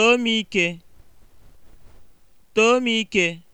Too m